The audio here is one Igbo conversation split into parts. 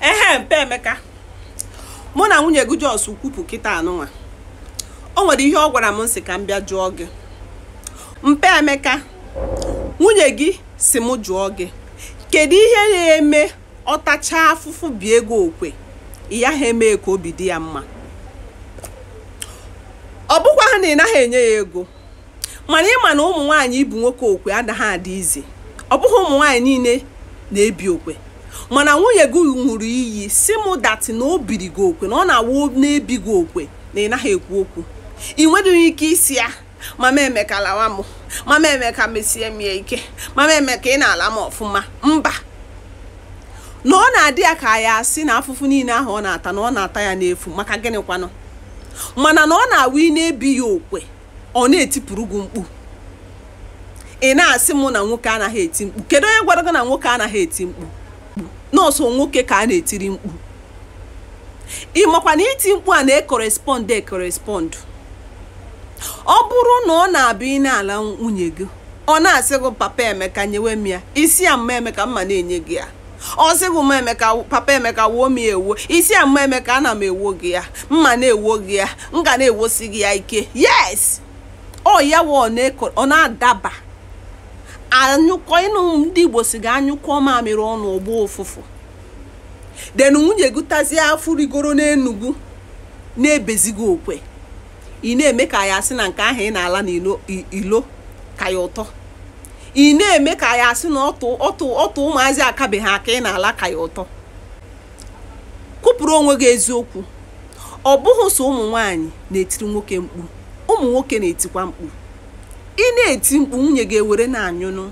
ehe mpe emeka mụ na nwunye gị jos kwupụ kịta anụnwa o nwere ihe ọ gwara m nsị ka m bịa jụọ gị mpe emeka nwunye gị si mụ jụọ gị kedu ihe na-eme ọ tachaa afụfụ bi ego okwe ya ha emee ka obi dị ya mma ọ bụkwa ha na ị naghị enye ya ego mana ịma na ụmụ nwaanyị ibu nwoke okwe adaghị adị izi ọ bụghị ụmụ nwaanyị niile na-ebi okwe mana nwunye gị ṅụrụ iyi si mụ datị na o biri gị okwe na ọ na-awụ na-ebi gị okwe na ị naghị ekwu okwu ị nweghị ike isi ya mama emeka lawa m mama emeka mesie m ya ike mama emeka ị na-ala m ọfụma mba na ọ na-adị ya ka ya asị na afụfụ niile ahụ ọ na-ata na ọ na-ata ya n'efu maka gịnị kwanụ mana na ọ na-awụ ị na-ebi ya okwe ọ na-etipụrụ gị mkpu ị na-asị mụ na nwoke anaghị eti mkpu kedu onye gwara gị na nwoke anaghị eti mkpu nọọsụ nwoke ka a na-etiri mkpu ị makwa na iti mkpu a na-ekorespọnd ekorespọnd ọ bụrụ na ọ na-abịa ị na-ala nwunye gị ọ na-asị gị papa emeka nyewe m ya isi a mma emeka mma na-enye gị ya ọ sịghị emeka papa emeka wuo m ya ewuo isi ya mma emeka ana m ewuo gị ya mma na ewuo gị ya m ga na-ewosi gị ya ike yes ọ ya ọ na-adaba anyụkọ ịnụ ndị igbo si ga anyụkọ mamịrị ọnụ ụgbọ ụfụfụ den nwunye gụtazie afụ rigoro n'enugwu na-ebezigo okwe ị na-eme ka ya asị na nke ahụ ị na-ala ilo ka ya ụtọ ị na-eme ka ya asị na ọtụ ụmụazị akabeghị aka ị na-ala ka ya ụtọ kụpụrụ onwe gị eziokwu ọ bụghị sọ ụmụ nwaanyị na-etiri nwoke mkpu ụmụ nwoke na-etikwa mkpu ị na-eti mkpu nwunye ga-ewere na-anyụnụ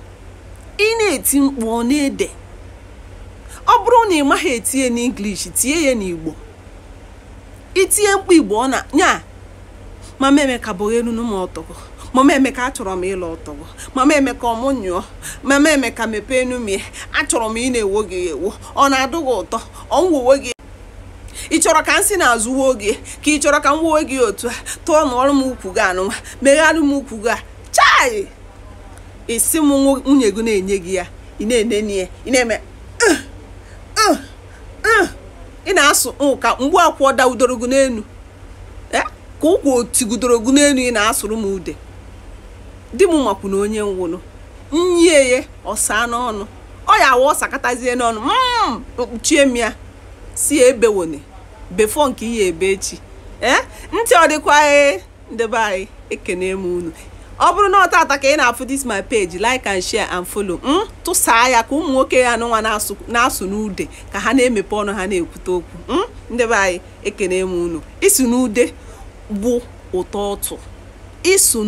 ị na-eti mkpu ọ na-ede ọ bụrụ na ị maghị etinye n'English tie ya n'Igbo itinye mkpu Igbo ọ na nya mama Emeka bụ m ọtọgọ mama Emeka achọrọ m ịlụ ọtọgọ mama Emeka ọmụ nyụọ mama Emeka mepee enumie achọrọ m ị na-ewo gị ewo ọ na-adụ gị ụtọ ọ nwuwe gị ị chọrọ ka m si n'azụ wuo gị ka ị chọrọ ka m wuo gị otu a tụọ n'ọrụ m ukwu gị anụnwa megharị m ukwu gị a chai isi m nwunye gị na-enye gị ya ị na-enene ya ị na-eme ị na-asụ ụka mgbu akwụ dawudoro gị n'elu e, ka ụkwụ otigudoro gị n'elu ị na-asụrụ m ude di m makwu na onye nwụrụ nyieye ọsa n'ọnụ ọ ya awa ọsakatazie n'ọnụ m mm, mkpuchie m ya si ebewone befọ nke ihe ebe echi e, ntị ọ dịkwa e. ndị be anyị ekene m unu ọ bụrụ na ọtata ka ị na-afụ dis my page like and share and follow m hmm? tụsaa ya ka ụmụ nwoke ya anụnwa na-asụ n'ude ka ha na-emepe ọnụ ha na-ekwute okwu m hmm? ndị be anyị ekene m unu isu n'ude bụ ụtọ ụtụ isu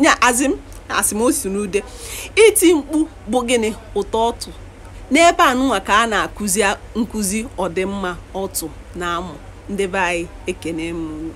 nya azị m asị m osi n'ude iti mkpu bụ gịnị ụtọ ọtụ n'ebe anụnwa ka a na-akụzi nkụzi ọdịmma ọtụ na amụ ndị be anyị ekene m unu